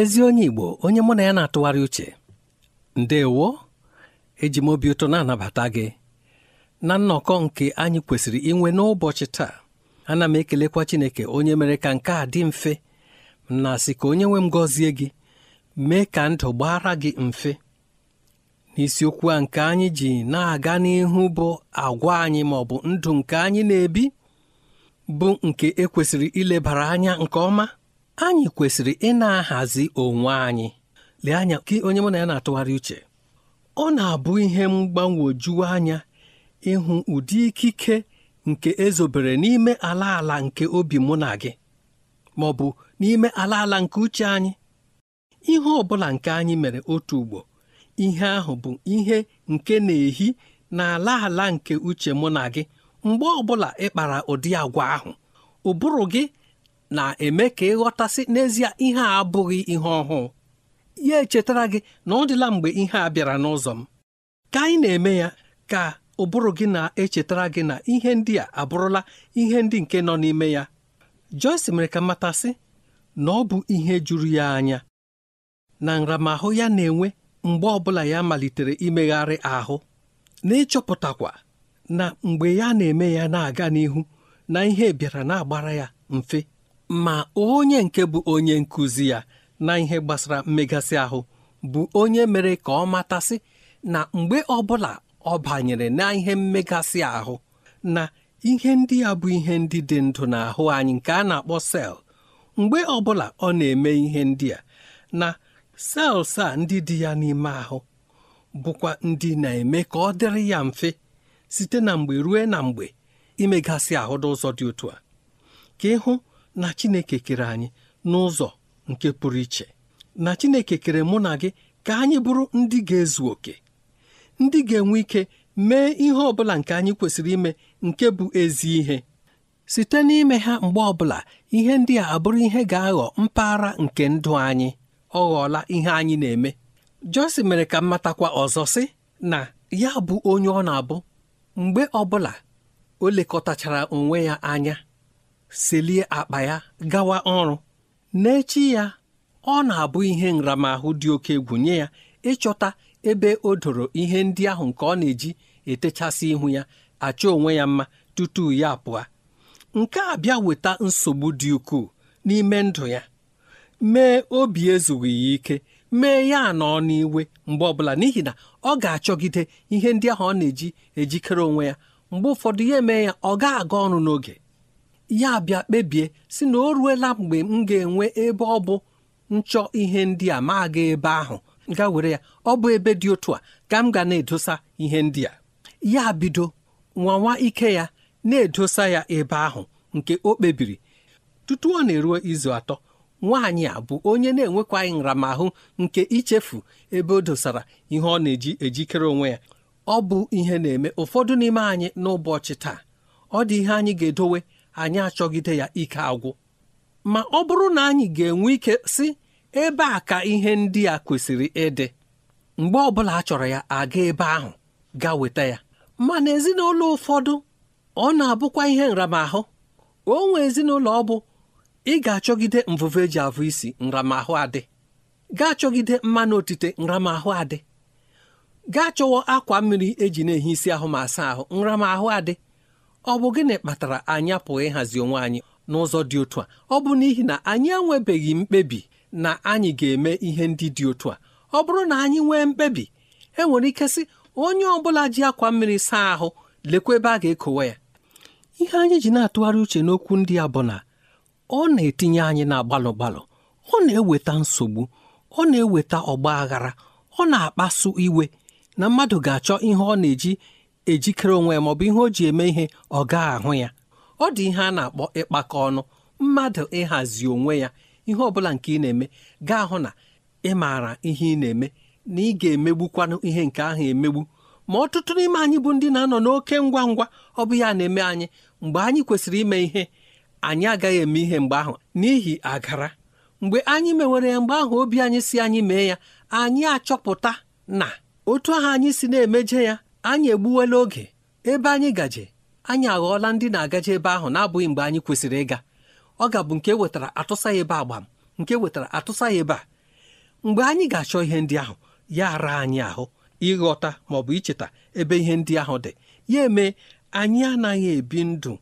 ezi onye Igbo onye mụ na ya na-atụgharị uche ndewo eji m obi ụtọ na-anabata gị na nnọkọ nke anyị kwesịrị inwe n'ụbọchị taa ana m ekelekwa Chineke onye mere ka nke a dị mfe na-asị ka onye nwe m gọzie gị mee ka ndụ gbara gị mfe n'isiokwu a nke anyị ji na-aga n'ihu bụ agwa anyị ma ọ bụ ndụ nke anyị na-ebi bụ nke ekwesịrị ilebara anya nke ọma anyị kwesịrị ị na-ahazi onwe anyị lee anya gị onye mụ na ya na-atụgharị uche ọ na-abụ ihe mgbanwoju anya ịhụ ụdị ikike nke ezobere n'ime ala ala nke obi mụ na gị ma ọ bụ n'ime ala ala nke uche anyị ihe ọ bụla nke anyị mere otu ugbo ihe ahụ bụ ihe nke na-ehi n'ala ala nke uche mụ na gị mgbe ọ bụla ị kpara ụdị agwa ahụ ụbụrụ gị na-eme ka ịghọtasị n'ezie ihe a abụghị ihe ọhụụ ya echetara gị na ọ dịla mgbe ihe a bịara n'ụzọ m ka anyị na-eme ya ka ụbụrụ gị na-echetara gị na ihe ndị a abụrụla ihe ndị nke nọ n'ime ya Joyce mere ka matasị na ọ bụ ihe juru ya anya na nramahụ ya na-enwe mgbe ọbụla ya malitere imegharị ahụ na-ịchọpụtakwa na mgbe ya na-eme ya na-aga n'ihu na ihe bịara na-agbara ya mfe ma onye nke bụ onye nkụzi ya na ihe gbasara mmegasị ahụ bụ onye mere ka ọ matasị na mgbe ọbụla ọ banyere na ihe mmegasị ahụ na ihe ndị ya bụ ihe ndị dị ndụ n'ahụ anyị nke a na-akpọ sel mgbe ọbụla ọ na-eme ihe ndị a na sels a ndị dị ya n'ime ahụ bụkwa ndị na-eme ka ọ dịrị ya mfe site na mgbe ruo na mgbe imegasị ahụ n'ụzọ dị otu a ka ịhụ na Chineke kere anyị n'ụzọ nke pụrụ iche na Chineke kere mụ na gị ka anyị bụrụ ndị ga-ezu oke ndị ga-enwe ike mee ihe ọ bụla nke anyị kwesịrị ime nke bụ ezi ihe site n'ime ha mgbe ọbụla ihe ndị a abụrụ ihe ga-aghọ mpaghara nke ndụ anyị ọ ghọọla ihe anyị na-eme Jọsi mere ka mmatakwa ọzọ sị na ya bụ onye ọ na-abụ mgbe ọbụla o lekọtachara onwe ya anya selie akpa ya gawa ọrụ n'echi ya ọ na-abụ ihe nramahụ dị oke egwu nye ya ịchọta ebe o doro ihe ndị ahụ nke ọ na-eji etechasị ihu ya achọ onwe ya mma tutu ya pụa nke a bịa weta nsogbu dị ukwuu n'ime ndụ ya mee obi ezughị ya ike mee ya nọ n'iwe mgbe ọbụla n'ihi na ọ ga-achọgide ihe ndị ahụ ọ na-eji ejikere onwe ya mgbe ụfọdụ ya emee ya ọ ga-aga ọrụ n'oge ya bịa kpebie si na o ruela mgbe m ga-enwe ebe ọ bụ nchọ ihe ndị a ma aga ebe ahụ ga were ya ọ bụ ebe dị otu a ka m ga na-edosa ihe ndị a ya bido nwanwa ike ya na-edosa ya ebe ahụ nke o kpebiri tutu ọ na-eruo izu atọ nwaanyị a bụ onye na-enwekwaghị nramahụ nke ichefu ebe o dosara ihe ọ na-eji ejikere onwe ya ọ bụ ihe na-eme ụfọdụ n'ime anyị n'ụbọchị taa ọ dị ihe anyị ga-edowe anyị achọgide ya ike agwụ ma ọ bụrụ na anyị ga-enwe ike si ebe a ka ihe ndị a kwesịrị ịdị mgbe ọbụla a chọrọ ya aga ebe ahụ ga weta ya mana ezinụlọ ụfọdụ ọ na-abụkwa ihe nramahụ o nwe ezinụlọ ọ bụ ị ga-achọgide mvụvụ eji avụ isi nramahụ adị ga-achọgide mmanụ otite nramahụ adị gaa chọwa akwa mmiri eji na-ehi isi ahụ ma asa ahụ nramahụ adị ọ bụ gịnị kpatara anyị apụghị ịhazi onwe anyị n'ụzọ dị otu a ọ bụ n'ihi na anyị enwebeghị mkpebi na anyị ga-eme ihe ndị dị otu a ọ bụrụ na anyị nwee mkpebi e nwere ike sị onye ọ bụla ji akwa mmiri saa ahụ lekwa ebe a ga-ekowe ya ihe anyị ji na-atụgharị uche n'okwu ndị a bụ na ọ na-etinye anyị na gbalụ gbalụ ọ na-eweta nsogbu ọ na-eweta ọgba aghara ọ na-akpasu iwe na mmadụ ga-achọ ihe ọ na-eji ejikere onwe ya maọbụ ihe o ji eme ihe ọ gaa ahụ ya ọ dị ihe a na-akpọ ịkpakọ ọnụ mmadụ ịhazi onwe ya ihe ọbụla nke ị na-eme gaa hụ na ị maara ihe ị na-eme na ị ga-emegbukwanụ ihe nke ahụ emegbu ma ọtụtụ n'ime anyị bụ ndị na-anọ n'oke ngwa ngwa ọ bụ ya na-eme anyị mgbe anyị kwesịrị ime ihe anyị agaghị eme ihe mgbe ahụ n'ihi agara mgbe anyị mewere ya mgbe ahụ obi anyị si anyị mee ya anyị achọpụta na otu ahụ anyị si na-emeje ya anyị egbuwela oge ebe anyị gaje anyị aghọọla ndị na-agaje ebe ahụ na-abụghị mgbe anyị kwesịrị ịga ọ ga-abụ nke e wetara atụsa ya ebe agbam nke e wetara atụsa ya ebe a mgbe anyị ga-achọ ihe ndị ahụ ya ara anyị ahụ ịghọta ma ọ bụ icheta ebe ihe ndị ahụ dị ya eme anyị anaghị ebi ndụ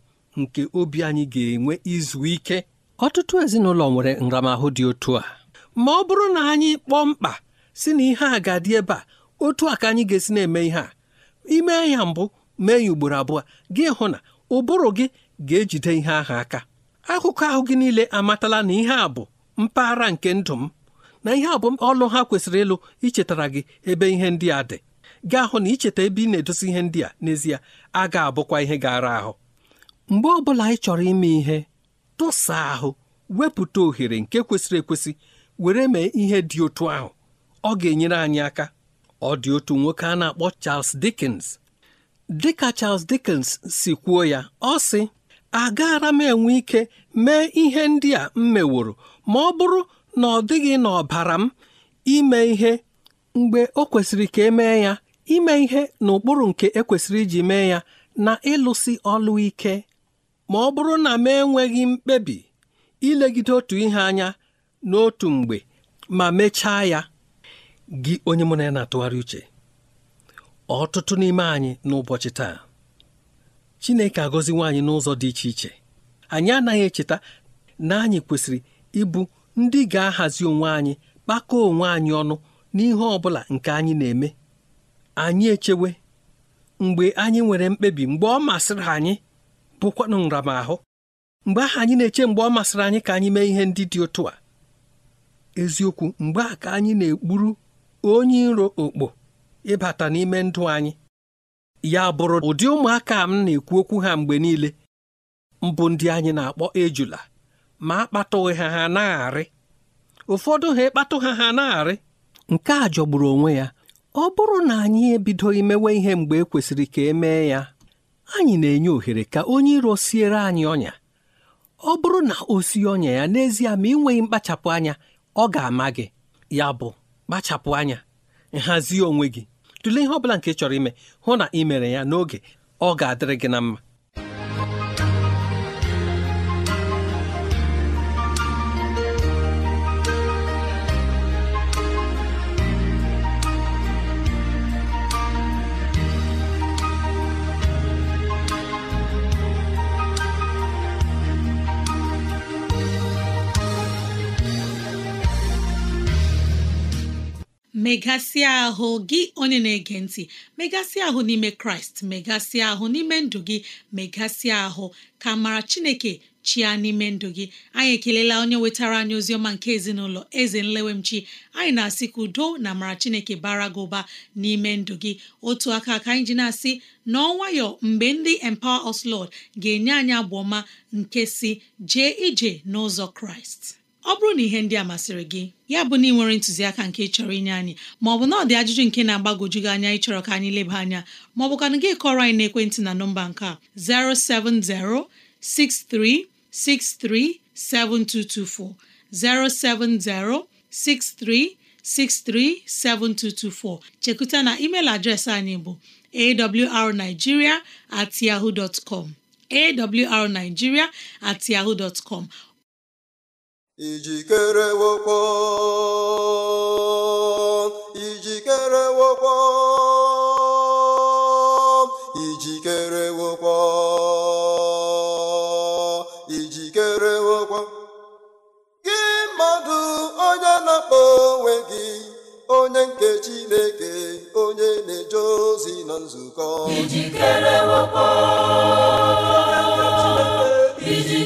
nke obi anyị ga-enwe izu ike ọtụtụ ezinụlọ nwere nramahụ dị otu a ma ọ bụrụ na anyị kpọọ mkpa si na ihe a ga-adị ebe a otu a ka anyị ga-esi na-eme ihe a ime ya mbụ mee ya ugboro abụọ gị hụ na ụbụrụ gị ga-ejide ihe ahụ aka akụkọ ahụ gị niile amatala na ihe a bụ mpaghara nke ndụ m na ihe a bụ ọlụ ha kwesịrị ịlụ ichetara gị ebe ihe ndị a dị gaa hụ na icheta ebe ị na-edosi ihe ndị a n'ezie a ga-abụkwa ihe gara ahụ mgbe ọ bụla ị chọrọ ime ihe tụsa ahụ wepụta ohere nke kwesịrị ekwesị were mee ihe dị otu ahụ ọ ga-enyere anyị aka ọ dị otu nwoke a na-akpọ Charles Dickens dịka Charles Dickens si kwuo ya ọ sị agaara m enwe ike mee ihe ndị a m meworo ma ọ bụrụ na ọ dịghị n'ọbara m ime ihe mgbe o kwesịrị ka emee ya ime ihe n'ụkpụrụ nke ekwesịrị iji mee ya na ịlụsi ọlụ ike ma ọ bụrụ na m enweghị mkpebi ilegide otu ihe anya n'otu mgbe ma mechaa ya gị onye mụ na ya na-atụgharị uche ọtụtụ n'ime anyị n'ụbọchị taa Chineke agọzi nwaanyị n'ụzọ dị iche iche anyị anaghị echeta na anyị kwesịrị ịbụ ndị ga-ahazi onwe anyị kpakọọ onwe anyị ọnụ n'ihe ọ bụla nke anyị na-eme anyị echewe mgbe anyị nwere mkpebi mgbe ọ masịrị anyị bụkwanụ nramahụ mgbe ahụ anyị na-eche mgbe ọ masịrị anyị ka anyị mee ihe ndị dị otu a eziokwu mgbe a ka anyị na-ekpuru onye iro okpo ịbata n'ime ndụ anyị ya bụrụ ụdị ụmụaka m na-ekwu okwu ha mgbe niile mbụ ndị anyị na-akpọ ejula ma akpatụghị ha ha na-arị ụfọdụ ha ịkpatụ ha ha na-arị nke a jọgburu onwe ya ọ bụrụ na anyị ebido imewe ihe mgbe e kwesịrị ka e mee ya anyị na-enye ohere ka onye iro siere anyị ọnya ọ bụrụ na o sie ọnya ya n'ezie ma ị nweghị mkpachapụ anya ọ ga-ama gị ya bụ kpachapụ anya nhazi onwe gị tụlee ihe ọ bụla nke chọrọ ime hụ na ị mere ya n'oge ọ ga-adịrị gị na mma megasịa ahụ gị onye na-ege ntị megasịa ahụ n'ime kraịst megasịa ahụ n'ime ndụ gị megasịa ahụ ka mara chineke chia n'ime ndụ gị anyị ekelela onye wetara anyị ozi ọma nke ezinụlọ eze nlewemchi anyị na-asị ka udo na amara chineke bara gị ụba n'ime ndụ gị otu aka ka anyị ji na-asị n'ọnwayọ mgbe ndị empower us lord ga-enye anyị abụ nke si jee ije n'ụzọ kraịst ọ bụrụ na ihe ndị a masịrị gị ya bụ na ị nwere ntụziaka nke chọrọ inye anyị ma ọ bụ na ọ dị ajụjụ nke na-agbagwoju gị anya ịchọrọ ka anyị leba anya ma ọ bụ ka gị kọrọ anyị n'ekwentị na nọmba nke a 07063637224 07063637224 chekuta na email adreesị anyị bụ awrnigeria at yahoo com at com ijikerewokwo ijikerewokwo ijikerewokwo ijikerewokwo gị mmadụ onye na-akpọ onwe gị onye nke Chineke onye na-eje ozi na nzukọ ijikerewokwo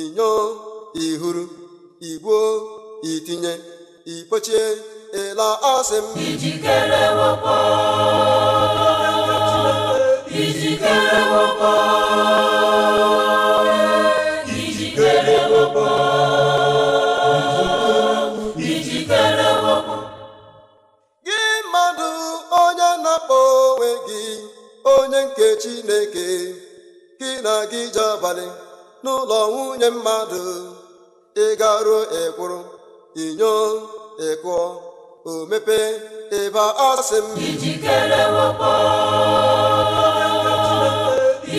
inyo ihuru igbuo itinye ikpochie ịla asị m gị mmadụ onye na-akpọ onwe gị onye nke Chineke gị na gị ji abalị n'ụlọ nwunye mmadụ ịgaruo ekwuru inyo ịkụọ o mepee ịba asị m ijikere wakpo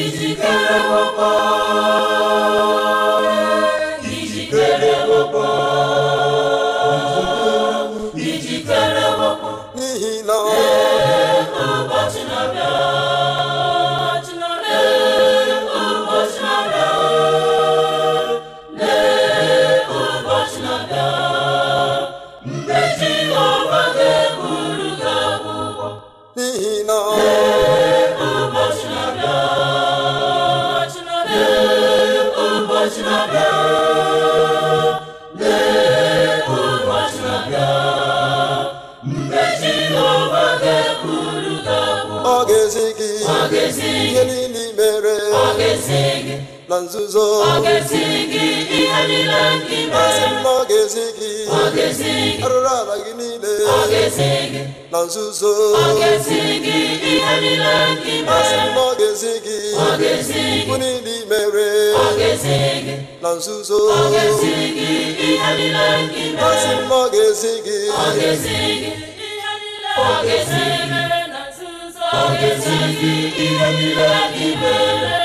ijikere wakpo na nzuzo ọ ga gị ihe mere gị arụrụ ala gị niile ọ na nzuzo ọ ga gị ihe niile mere ọ ga-ezi gị ọ ga-ezi gị ọ ga na nzuzo ga ihe niile ga-ezi gị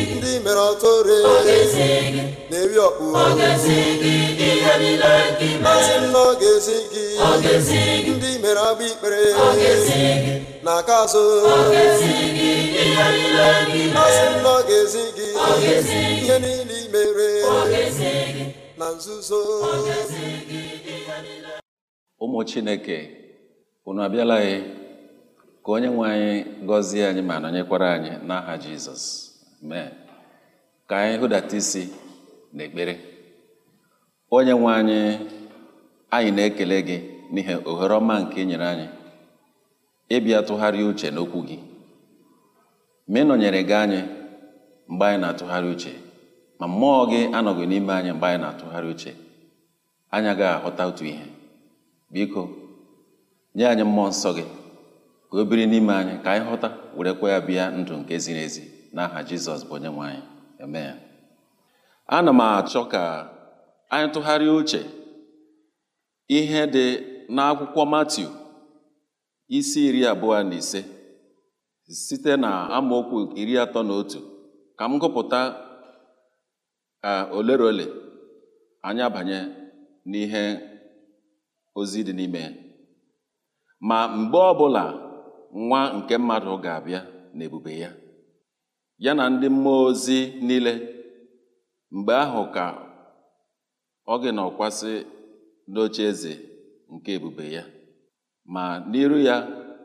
mere ọtụrụ na-eri ọkpụ masị m na ọ ga gị ndị mere agba ikpere na aka azụ masị m na ọ ga-esi gị ihe niile imere na nzuzo ụmụ chineke unu abịala anyị e, ka onye nwe anyị gọzie anyị ma nọnyekwara anyị n'aha jizọs ka anyị hụdata isi n'ekpere onye nwe anyị anyị na-ekele gị n'ihi ohere ọma nke ị nyere anyị ịbịa tụgharị uche n'okwu gị ma ị gị anyị mgbe anyị na-atụgharị uche ma mmụọ gị anọghị n'ime anyị mgbe anyị na-atụgharị uche anyị agaghị ahụta otu ihe biko nye anyị mmụọ nsọ gị ka o biri n'ime anyị ka anyị ghọta werekwa ya bịa ndụ nke ziri ezi n'aha Jizọs bụ onye nwe anyị ana m achọ ka anyị tụgharịa uche ihe dị n'akwụkwọ matiu isi iri abụọ na ise site na amaokwu iri atọ na otu ka m gụpụta olere ole anyị abanye n'ihe ozi dị n'ime ma mgbe ọbụla nwa nke mmadụ ga-abịa n'ebube ya ya na ndị mmụọ ozi niile mgbe ahụ ka ọ gị na ọkwasị n'oche eze nke ebube ya ma n'iru ya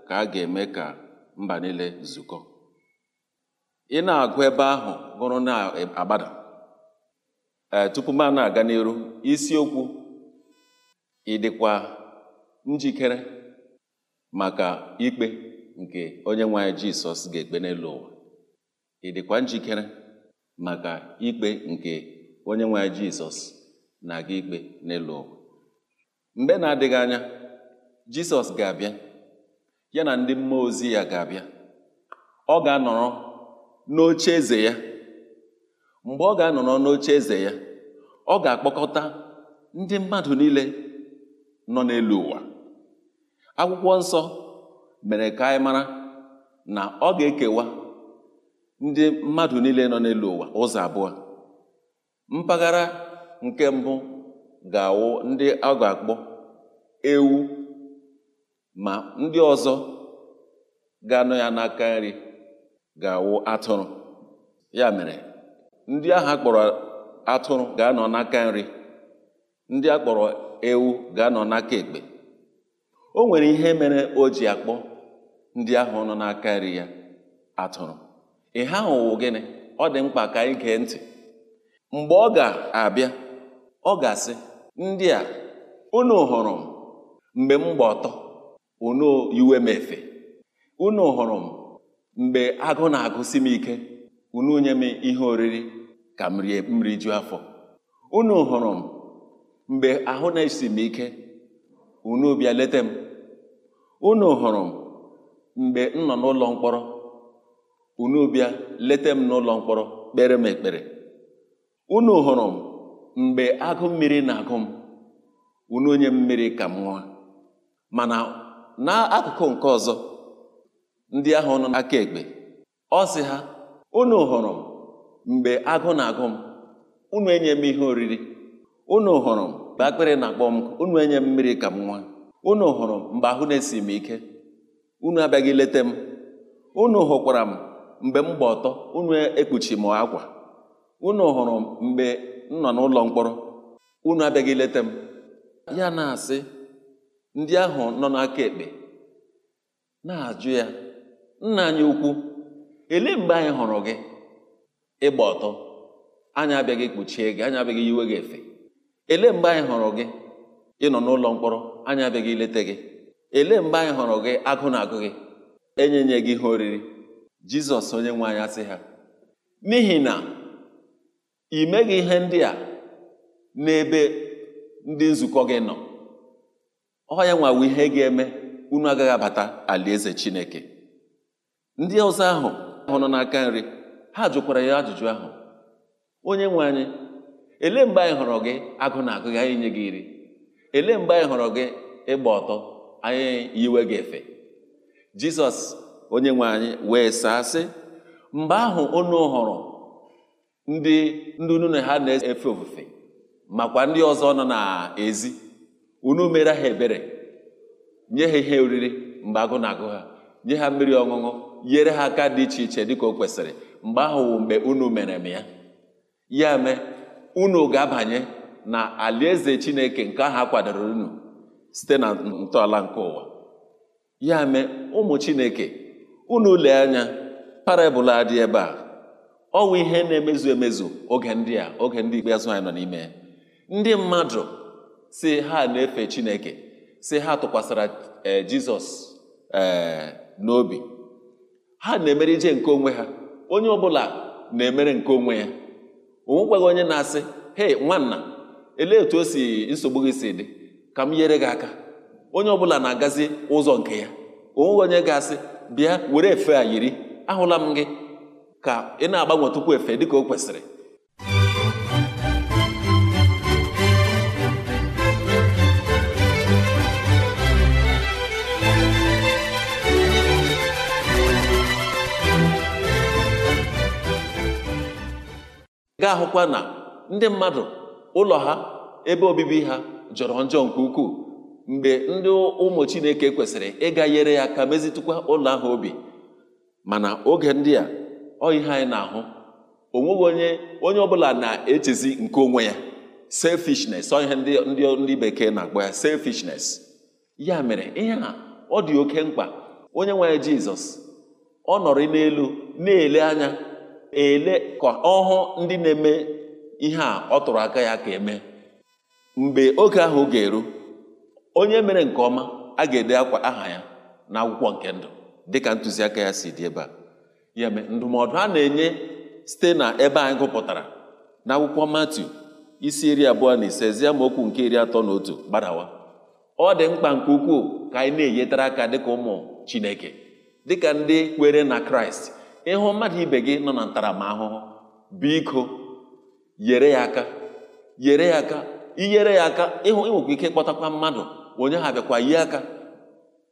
ka a ga-eme ka mba niile zukọ ị na-agụ ebe ahụ gụrụ na-agbada ee tupu m na-aga n'iru isiokwu ị njikere maka ikpe nke onye nwe anyị Jisọs ga-ekpe n'elu ụwa ị dịkwa njikere maka ikpe nke onye nwe jizọs na-aga ikpe n'elu ụwa mgbe na-adịghị anya jizọs ga-abịa ya na ndị mmụọ ozi ya ga-abịa ọ ga-anọrọ n'oche eze ya mgbe ọ ga-anọrọ n'oche eze ya ọ ga-akpọkọta ndị mmadụ niile nọ n'elu ụwa akwụkwọ nsọ mere ka anyị mara na ọ ga-ekewa ndị mmadụ niile nọ n'elu ụwa ụzọ abụọ mpaghara nke mbụ ga-awụ ndị a akpọ ewu ma ndị ọzọ ga-anọ ya n'aka nri ga-awụ atụrụ ya mere ndị ahụ akpọrọ atụrụ ga-anọ n'aka nri ndị akpọrọ ewu ga-anọ n'aka ekpe o nwere ihe mere o ji akpọ ndị ahụ nọ n'aka nri ya atụrụ ihe ha wụ gịnị ọ dị mkpa ka anyị gee ntị mgbe ọ ga-abịa ọ ga-asị ndị a unu hụrụ m mgbe m gba ọtọ unu iwe m efe unu hụrụ m mgbe agụ na-agụsi m ike unu nye m ihe oriri ka m rie m rijuo afọ unu hụrụ m mgbe ahụ na-esi m ike unu bịa leta m unu hụrụ m mgbe m nọ n'ụlọ mkpọrọ unu bịa leta m n'ụlọ mkpọrọ kpere m ekpere unu hụrụ m mgbe agụ mmiri na-agụ m unu onye mmiri ka m nwa mana n'akụkụ nke ọzọ ndị ahụ nọ n'aka ekpe ọ sị ha unu hụrụ m mgbe agụ na-agụ m unu enye m ihe oriri unu hụrụ m mgbe akpịrị na-akpọ m unu enye mmiri ka m nwa unu hụrụ m mgbe ahụ na-esi m ike unu abịaghị leta m unu hụkwara m mgbe m gba ọtọ unu e-, ekpuchi m akwa unu hụrụ mgbe m nọ n'ụlọ mkpọrọ unu abịaghị leta m ya na-asị ndị ahụ nọ n'aka ekpe na-ajụ ya nna anyị ukwu ele mgbe anyị hụrụ gị ịgba ọtọ anyị abịaghị ekpuchie gị anyị abịaghị yiwe gị efe ele mgbe anyị hụrụ gị ịnọ n'ụlọ mkpọrọ anyị abịaghị ileta gị ele mgbe anyị hụrụ gị agụ na agụ gị enyenye gị ihe oriri jizọs onye nwe anyị ha n'ihi na ị meghị ihe ndị a n'ebe ndị nzukọ gị nọ ọya nwawo ihe ga-eme unu agaghị abata alaeze chineke ndị ọzọ ahụ ahụ nọ n'aka nri ha jụkwara ya ajụjụ ahụ onye nwe anyị ele mgbe anyị hụrụ gị agụ na agụ gị anyị nye gị iri ele mgbe anyị hụrụ gị ịgba ọtọ anyị yiwe gị efe jizọs onye nwe anyị wee saa sị mgbe ahụ unu hụrụ ndị ndị unu na ha na-efe ofufe makwa ndị ọzọ nọ n'ezi unu mere ha ebere nye ha ihe oriri mgbe agụ na-agụ ha nye ha mmiri ọṅụṅụ nyere ha aka dị iche iche dịka o kwesịrị mgbe ahụ wụ mgbe unu mere m ya ya mee unu ga-abanye na alaeze chineke nke ahụ akwadoro kwadoro unu site na ntọala nke ụwa ya mee ụmụ chineke unu lee anya parabụl adị ebe a ọnwụ ihe na-emezu emezu oge ndị a oge ndị ikpeazụ anyị nọ n'ime ndị mmadụ si ha na-efe chineke si ha tụkwasịra e, jizọs e, n'obi ha na-emere ije nke onwe ha onye ọbụla na-emere nke onwe ya onwekwaghị onye na-asị hei nwanna elee etu o si nsogbu gị si dị ka m nyere gị aka onye ọbụla na-agazi ụzọ nke ya onweghị onye ga-asị bịa were efe a yiri ahụla m gị ka ị na-agbanwe tupu efe dị ka o kwesịrị ga-ahụkwa na ndị mmadụ ụlọ ha ebe obibi ha jọrọ njọ nke ukwuu mgbe ndị ụmụ chineke kwesịrị ịga nyere ya aka mezitụkwa ụlọ ahụ obi mana oge ndị a ọ ihe anyị na-ahụ onweghị onye onye ọ bụla na-echezi nke onwe ya selfishness ọ ihe ndị ndị bekee na-akpọ ya selfishness ya mere ihe a ọ dị oke mkpa onye nwere jizọs ọ nọrọ n'elu na-ele anya ele ka ọhụ ndị na-eme ihe a ọ tụrụ aka ya ka eme mgbe oge ahụ ga-eru onye mere nke ọma a ga-ede akwa aha ya na akwụkwọ nke ndụ dịka ntụziaka ya si dị ebe a ya mee ndụmọdụ a na-enye site na ebe anyị gụpụtara na akwụkwọ Matiu isi iri abụọ na ise zie okwu nke iri atọ na otu gbadawa ọ dị mkpa nke ukwuu ka anyị na-enyetara aka dịka ụmụ Chineke dịka ndị kwere na Kraịst ịhụ mmadụ ibe gị nọ na ntaramahụhụ biko yere ya aka yere ya aka inyere ya aka ịhụ ike ịkpọtakwa mmadụ onye ha bịakwa yi aka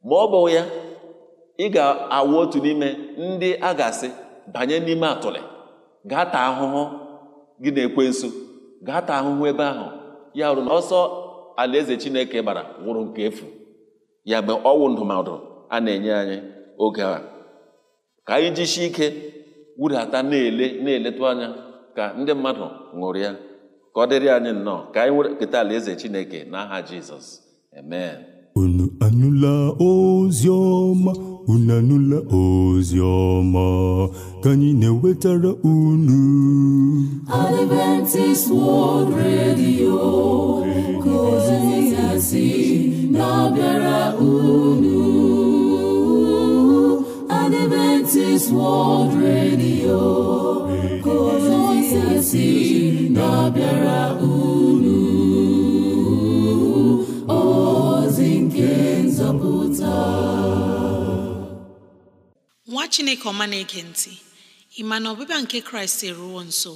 ma ọ bụ ya ị ga-awụ otu n'ime ndị a ga-asị banye n'ime atụlị gaa taa ahụhụ gị na-ekwe nso gaa taa ahụhụ ebe ahụ ya rụrụ ọsọ alaeze chineke gbara wụrụ nke efu ya mgbe ọwụ ndụmọdụ a na-enye anyị oge a ka anyị jisie ike wudata na-ele na-eletụ anya ka ndị mmadụ ya ka ọ dịrị anyị nnọọ ka anyị nwere keta alaeze chineke n'aha jizọs unu anụla ozi ọma unu anụla ozi ọma ka anyị na-ewetara unu Adventist World Radio ka ozi ya si na-abịara unu Adventist World Radio ka ozi ya si na-abịara unu chineke ọma na-ege ntị ị ma na ọbịbịa nke kraịst eruwo nso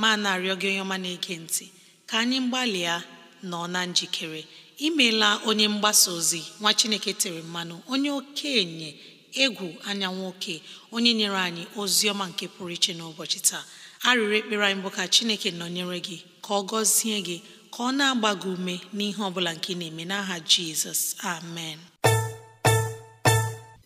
ma na-arịọ gị onye ọma na-ege ntị ka anyị gbalịa nọ na njikere imeela onye mgbasa ozi nwa chineke tere mmanụ onye okenye egwu anya nwoke onye nyere anyị ozi ọma nke pụrụ iche n'ụbọchị taa arịrị ekpere anyị bụ ka chineke nọnyere gị ka ọ gọzie gị ka ọ na-agba gị ume n'ihe ọ bụla nke ị na-eme n'aha jizọs amen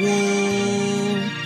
woo!